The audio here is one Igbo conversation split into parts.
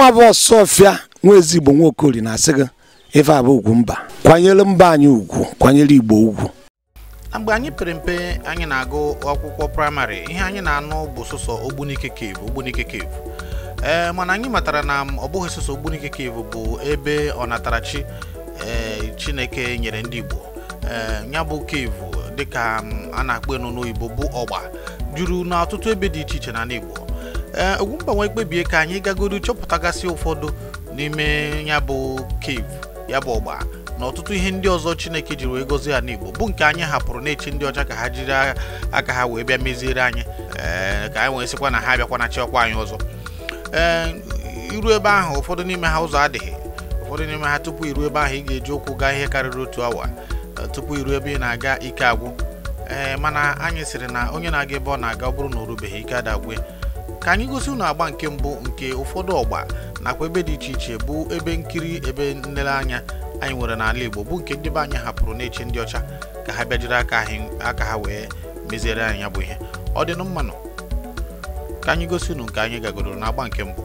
nwa bụ ọfịa nwa ezigbo nwa okori na-asị gị ife abụ ugwu mba kwanyere mba anyị ugwu kwanyere igbo ugwu mgbe anyị pere mpe anyị na-agụ akwụkwọ praịmarị ihe anyị na-anụ bụ sụsọ ogbunike kev ogbunike kev ee eh, mana anyị matara na ọ bụghị sụsọ ogbunike kev bụ ebe ọnatarachi ee eh, chineke nyere ndị igbo ee eh, ya bụ kev dịka a na-akpọ enu n'oyibo bụ ọgba juru n'ọtụtụ ebe dị iche iche na igbo ee eh, mgbanwe kpebie ka anyị gagodu chọpụtagasị ụfọdụ n'ime ya bụ cave ya bụ ọgba na ọtụtụ ihe ndị ọzọ Chineke jiri wee gozie ya n'Igbo bụ nke anyị hapụrụ na-echi ndị ọcha ka ha jiri aka ha wee bịa meziere anyị ee eh, ka anyị wee sịkwa na ha na chịọkwa anyị ọzọ ee eh, iru ebe ahụ ụfọdụ n'ime ha ụzọ adịghị ụfọdụ n'ime ha tupu iru ebe ahụ ị ga-eji ụkwụ gaa ihe karịrị otu awa tupu iru ebe ị na-aga ike agwụ ee mana anyị sịrị na onye na-aga ebe ọ na-aga ọ bụrụ na o rubeghị ike adagwe ka anyị gosi unu agba nke mbụ nke ụfọdụ ọgba nakwa ebe dị iche iche bụ ebe nkiri ebe nlereanya anyị nwere n'ala Igbo bụ nke ndị be anyị hapụrụ na-eche ndị ọcha ka ha bịajiri jiri aka ha wee meziere anyị ya bụ ihe ọ dị mmanụ ka anyị gosi ụnụ nke anyị gagoro n'agba nke mbụ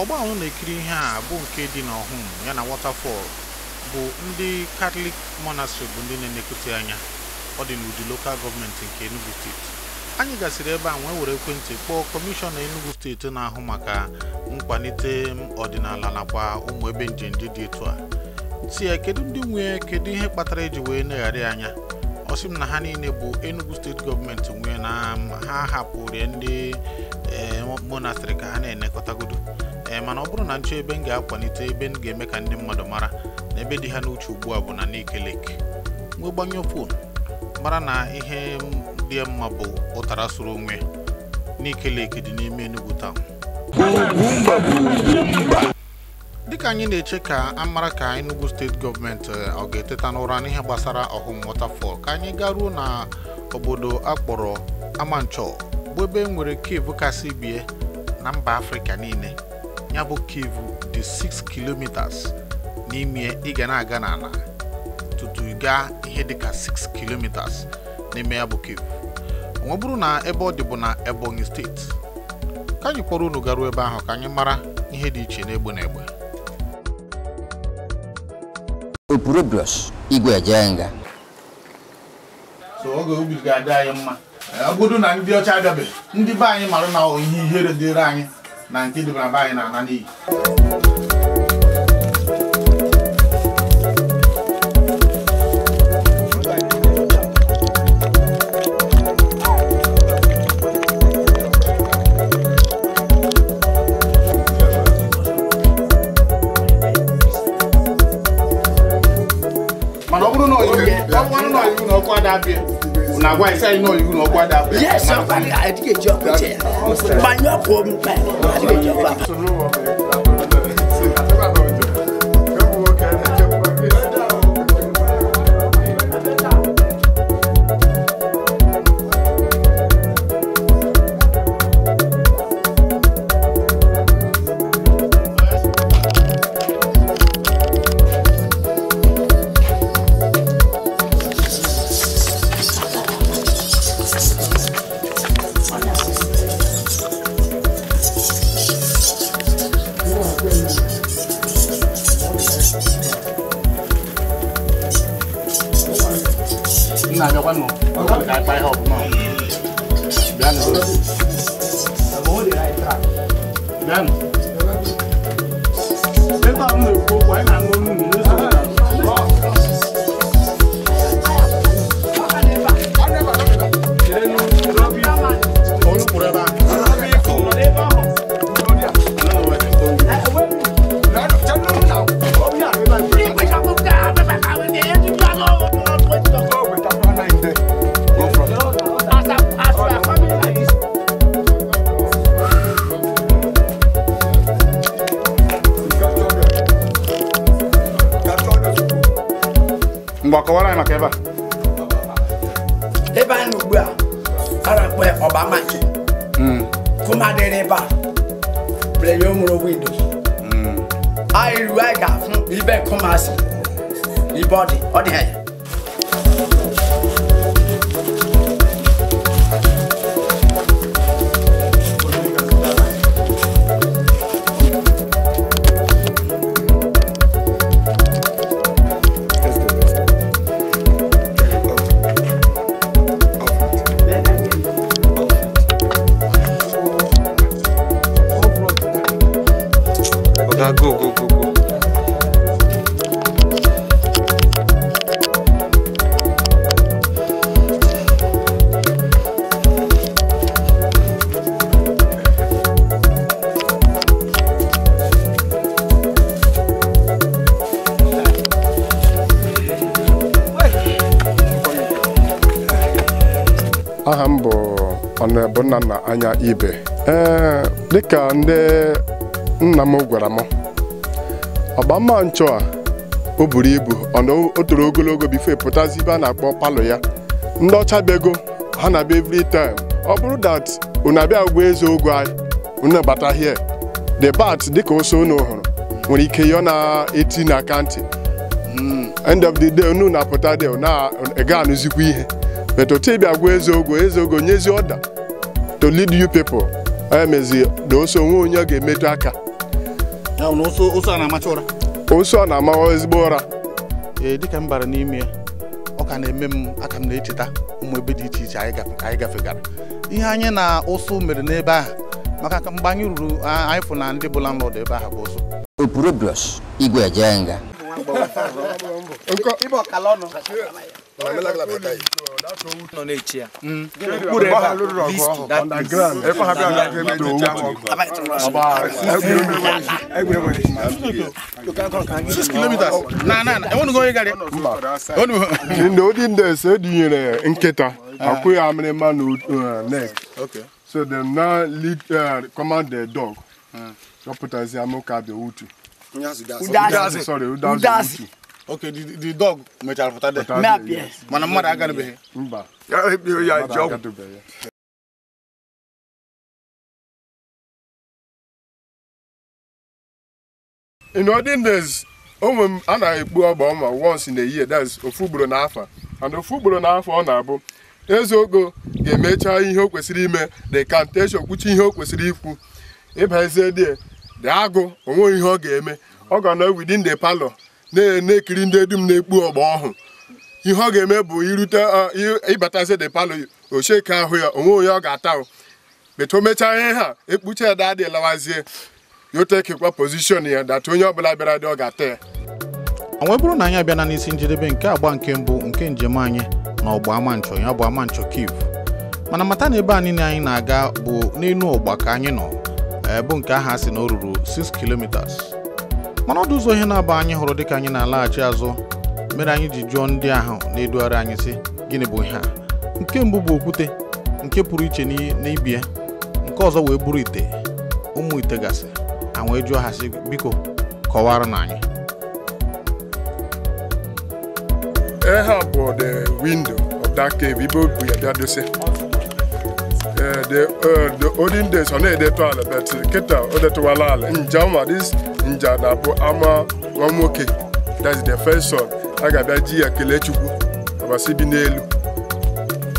ọgba ahụ na-ekiri ihe a bụ nke dị n'ọhụm ya na Waterfall bụ ndị katọlik monastery bụ ndị na-enekọta anya ọ dị n'ụdị lokal gọọmenti nke Enugu steeti anyị gasịrị ebe a nwee were ekwentị kpọọ kọmishọna Enugu steeti na-ahụ maka nkwalite ọdịnala nakwa ụmụ ebe njem ndị dị etu a si ya kedu ndị nwee kedu ihe kpatara eji wee negharị anya ọ sị m na ha niile bụ Enugu steeti gọọmenti nwee na ha hapụrụ ndị eh, monastrị ka ha na-enekọtagodo ee mana ọ bụrụ na nchọ ebe m ga-akwalite ebe m ga-eme ka ndị mmadụ mara na ebe dị ha n'uche ugbu a bụ na Nike Lake wee gbanyụọ fon mara na ihe dị mma bụ ụtara soro onwe Nike dị n'ime Enugu taụn dịka anyị na-eche ka a mara ka Enugu steeti gọọmenti eh, ọ ga-eteta n'ụra n'ihe gbasara ọhụm waterfall ka anyị garuo na obodo akpọrọ Amanchọ bụ ebe e nwere kevu kasị bie na mba Afrịka niile ya bụ kevu dị 6 kilometers n'ime ị ga na-aga n'ala tutu gaa ihe dịka 6 kilometers n'ime ya bụ kevu ọ bụrụ na ebe ọ dị bụ na Ebonyi steeti ka anyị kpọrọ unu garuo ebe ahụ ka anyị mara ihe dị iche n'egbe na egbe Opurobios Igwe Ejenga so oge ubi ga-adị anyị mma ọ bụrụ na ndị ọcha abịabeghị ndị be anyị mara na ihe ihere dịrị anyị na nke debara mba anyị na-ana n'iyi na why say no you no kwada yes so kwada adike job there banyo ko mu pa adike job nào cho quanh một cái bài hộp mà đen rồi đen đến tao người luôn maki mm. kuma dereba breyomuro windo mm. airu aiga fun ibẹ kumasi ibọdi ọdi ẹyẹ. na go go go go aha m bụ ọnụebunna na anya ibe ee dịka ndị nna m gwara m ọgba mma nchụ a o buru ibu ọna toro ogologo bifo e pụtazi ibe a na-akpọ palọ ya ndị ọcha bịago ha na-abịa every time ọ bụrụ dat unu abịa gwa eze ogo anyị unu bata here the bat dịka ose unu hụrụ nwere ike yọọ na eti na akantị hmm, end of the day unu na-apụta de na-ega anụzikwa ihe but otu ịbịa gwa eze ogo eze ogo nyezi ọda to lead you people emezi na oso onwe onye ọ ga-emetụ aka ụsụ a na-amawa ụra. na-amachị ezigbo ụra ee dịka m bara n'ime ya ọ ka na-eme m aka m na-echeta ụmụ ebe dị iche iche anyị gafegara ihe anyị na ụsụ mere n'ebe ahụ maka mgbe anyị ruru anyị na ndị bụ n'ọdụ ebe ahụ bụ ụsụ igwe Mm. ndị odi ndị ese edinyere nkịta akwụ ah. ya amịrịma uh, na so dem na lead uh, command the uh, dog dọpụtazi ah. amụka abịa utu sorry udazi utu ok the dog mechara pụta yes. mana mmadụ agarabeghị mba ya ekpere eh, ya ji ọgwụ in olden days a na-ekpu ọgba ọma once na year that's ofu ugboro n'afọ and ofu ugboro n'afọ ọ na-abụ ezeogo ga-emecha ihe o kwesịrị ime the cantation which ihe o kwesịrị ikwu ịbazie die dị agụ ihe ọ ga-eme ọ ga nọ within the parlor na-ekiri ndị dum na-ekpu ọgba ọhụ ihe ọ ga-eme bụ irute ịbatazi de palo ocheke ahụ ya onwe onye ọ ga-ata beta o mechaa ihe ha ekpucha ya dadị lawazie yotekekwa pozishon ya data onye ọbụla bịara dị ọ ga-ata ya ọ bụrụ na anyị abịana n'isi njedebe nke agba nke mbụ nke njem anyị na ọgba ama ya bụ ama nchọ mana mata na ebe a niile anyị na-aga bụ n'elu ọgba ka anyị nọ eh, bụ nke aha si na o ruru 6 kilometers mana ọdụ ụzọ ihe na aba anyị hụrụ dịka anyị na-alaghachi azụ mere anyị ji jụọ ndị ahụ na-edugharị anyị sị gịnị bụ ihe a nke mbụ bụ okwute nke pụrụ iche n'ibi ya nke ọzọ wee bụrụ ite ụmụ ite gasị a wee jụọ ha sị biko kọwara na anyị Nja na-abụ ama nwa nwoke that's the first son a ga-abịa ji ya kelee Chukwu ọbasi bi n'elu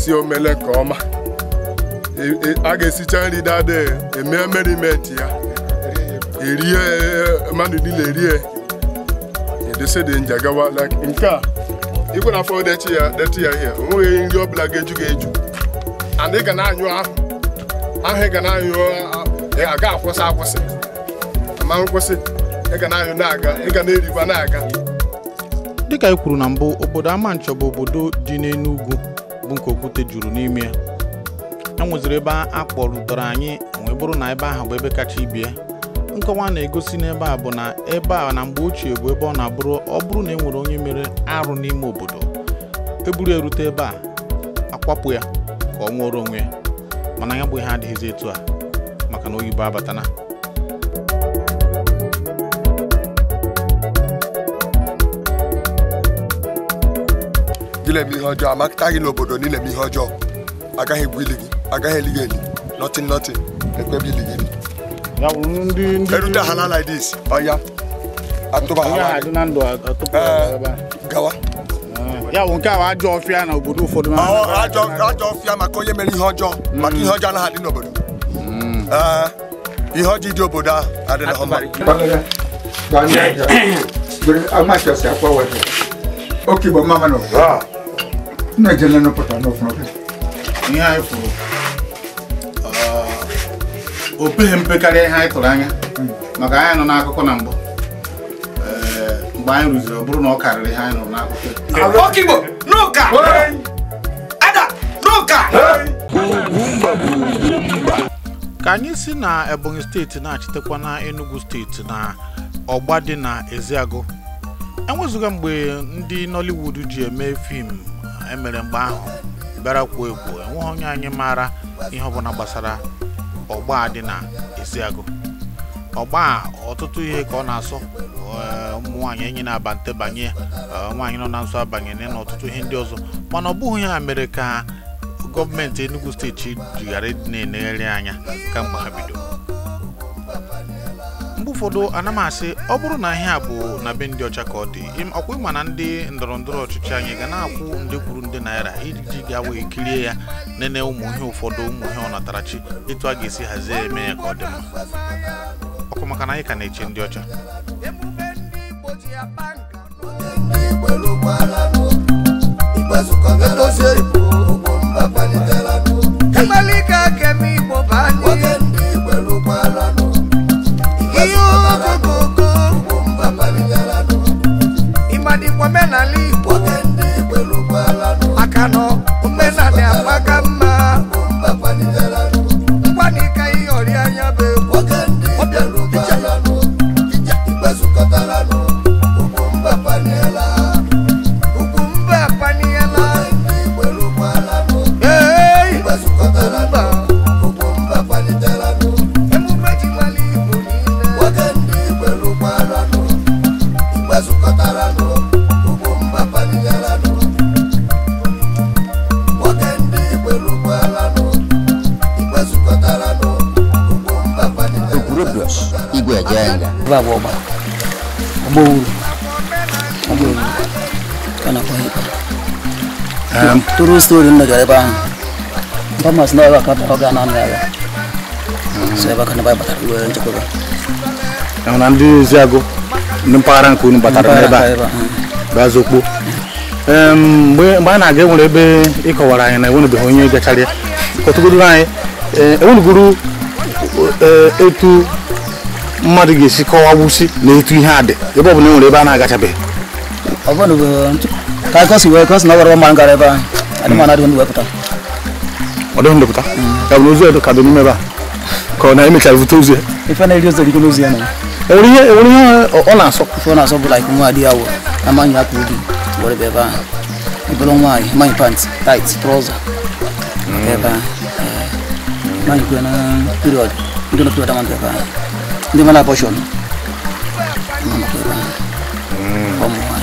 si o mele nke ọma e, e, a ga-esicha nri dada eme meriment ya erie mmadụ niile erie edosede nja gawa nke a ịkwere afọ detị ya detị ya ihe onweghị nri ọbụla ga-eju ga-eju and ị ga na-anyụ ahụ ahụ ị ga na-anyụ a ga-akwụsị akwụsị ma nkwụsị dịka e kwuru na mbụ obodo Amanchọ bụ obodo dị n'Enugu bụ nke okwute juru n'ime ya e nweziri ebe a kpọrutere anyị wee bụrụ na ebe ahụ bụ ebe kacha ibie nkọwa na-egosi n'ebe a bụ na ebe a na mgbe ochie bụ ebe ọ na-abụrụ ọ bụrụ na e nwere onye mere arụ n'ime obodo eburu erute ebe a akwapụ ya ka ọ nwụọrọ onwe ya mana ya bụ ihe adịghịzi etu a maka na oyibo abatana ile mihọjọ amakaghị n'obodo niile ma ihe ọjọọ agaghị egbu ili gị agaghị eli gị eli nothing nothing ekpebe ili gị eli erute ha na like this ọya atụba ha eh, gawa ya bụ nke a ajọ ọfịa na obodo ụfọdụ ajọ ọfịa maka onye mere ihe ọjọọ maka ihe ọjọọ anaghị adị n'obodo ihe ọjọọ dị obodo ahụ adịrị ha mma. Okigbo mama n'obodo. na-ejele na nụpụta n'ọfụma ihe anyị fụrụ uh, o peghị mpe karịa ihe anyị tụrụ anya hmm. maka anyị nọ n'akụkọ na mbụ eh, mgbe anyị rụziri ọ bụrụ na ọ karịrị ihe anyị nụrụ n'akụkọ ka anyị si na ebonyi steeti na-achịtekwa na enugu steeti na ọgba dị na eziagụ enwezụga mgbe ndị nollywood ji eme fim emere mgbe ahụ bịara kwuo ekwuo enweghị onye anyị maara ihe ọbụla gbasara ọgba dị na agụ ọgba ọtụtụ ihe ka ọ na asụ eh, ụmụ nwaanyị enyi na-abante banye eh, nwaanyị nọ na nso abanye na ọtụtụ ihe ndị ọzọ mana ọ bụghị ya mere ka gọọmenti enugwu steeti jighara na-enegharị anya kamgbe ha bido ụfọdụ ana ọ bụrụ na ihe a bụ na be ndị ọcha ka ọ dị ọkwa ịma na ndị ndọrọ ndọrọ ọchịchị anyị ga na-akwụ ndị kwuru ndị naira iji ga wee kirie ya nene ụmụ ihe ụfọdụ ụmụ ihe ọ natarachi etu a ga-esi hazie eme ya ka ọ dị mma ọkụ maka na anyị ka na-eche ndị ọcha Um, tụrụ stori m megara ebe ahụ famas na ebe aka ọ ga na hmm. ya so ebe aka na ebe batara wee nchekwaba ahụ na ndị oziagụ ndị mpaghara nke unu batara n'ebe a hmm. bazokpo um, mgbe a na-aga enwere ebe ịkọwara anyị na enwerebeghị onye gachara ya kọtụgodoro anyị um, enweregoro uh, etu mmadụ ga-esi kọwa wusi na etu ihe a dị ebe ọ bụla enwere ebe a na-agachabeghị kai kosi we kosi nagoro ba mangare ba ani mana don we puta odo ndo puta ka no zuwe ka don me ba ko na imi ka vuto zuwe ifa na ilio zeli kuno zuwe na ori ori ona so ko na so like mu adi awo amanya ku di wore be ba ibolo mai mai pants tight trouser be ba mai ku na period ndo na period amanda ba ndi mana portion mama ko ba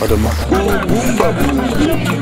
for the month. Boom, boom,